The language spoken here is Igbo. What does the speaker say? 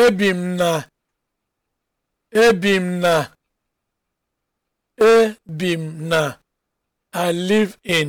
ebi m na m na i live in